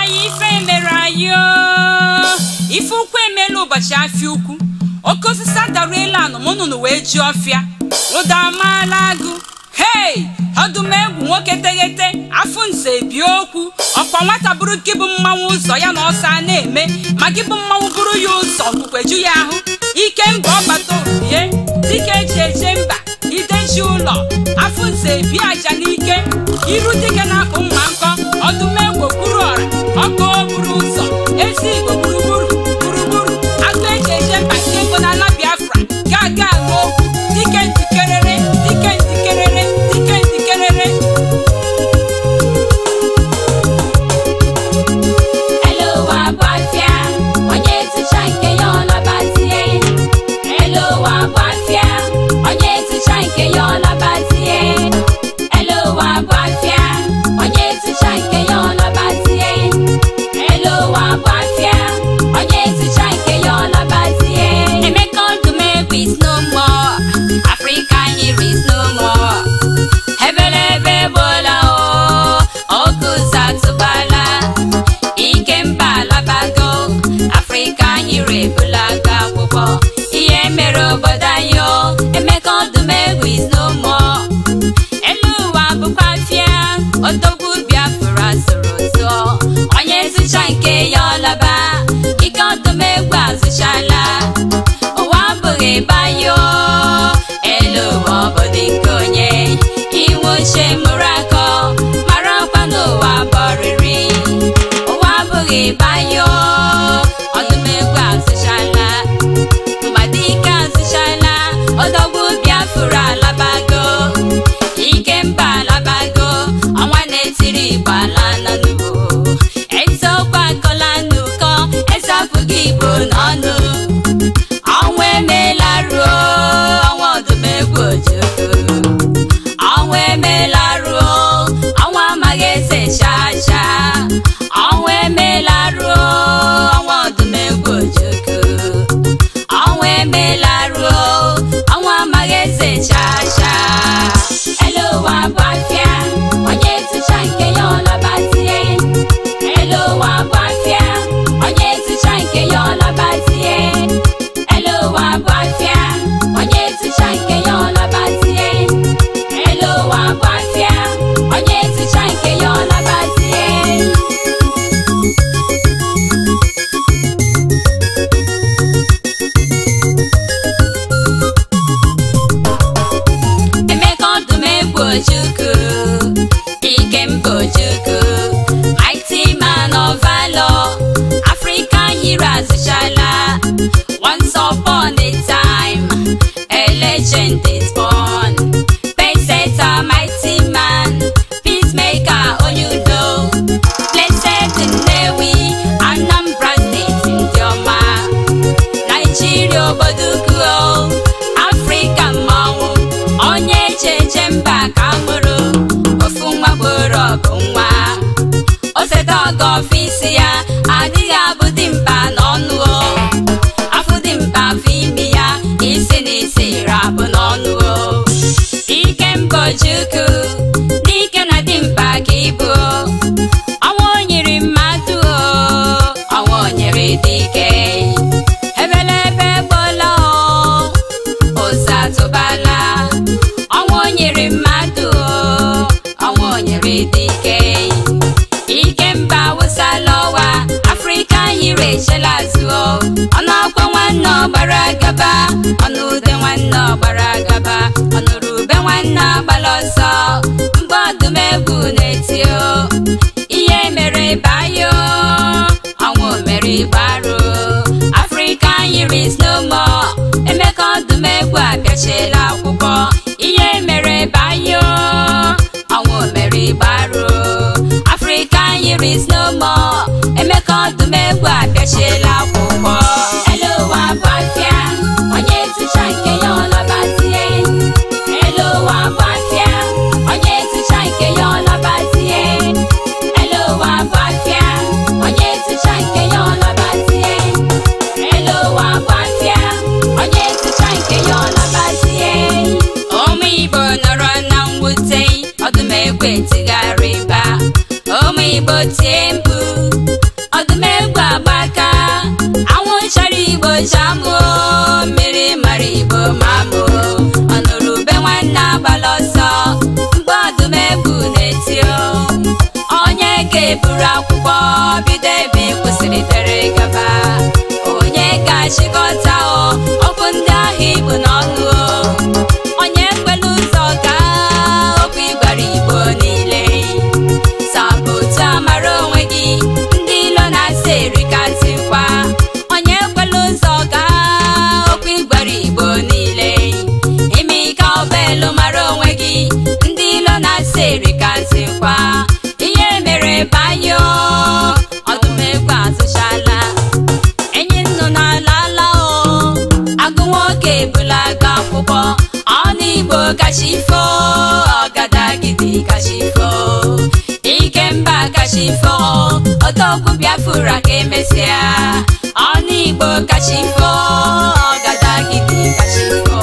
anyị ife mere anyị ife ukwu emela ụbọchị afịa ukwu oke osisi adara elu anụ wee ji ọfịa ụda amaala agụ hei ọdụmegwu nwoke teghete afụ nze bie okwu ọkwa nwata bụrụ gị bụ mmanwụ ụzọ ya na ọsọ a na-eme ma gị bụ mmanwụ bụrụ ya ụzọ okpukweju ya ahụ ike mba ọbata obie dike eji eje mba ideji ụlọ afụ nze bie aja n'ike iru dike na-akpụ mma nkọ ọdụme soro onye zụcha nke ya ọlaba I na-echela azụ ọnụ akwa nwanne ọgbara agaba ọnụ ude nwanne ọgbara agaba Ọnụ ube nwanne agbala ọsọ mgbe ọdụm na-eti ihe mere bayo ọnwụ mere igbaru afrịka yiri snomo emeka ọdụm egwu abịachiela akwụkwọ ihe mere bayo ọnwụ mere igbaru afrịka yiri snomo lọ́dún mẹ́wàá kẹ́ṣe lápò. buru akwụkwọ bido ebe e kwụsịrị tere gaba onye ga-achịkọta kacha ifo odogwu biafra ka emesịa ọnụ igbo kacha ifo ọgadagidi kacha ifo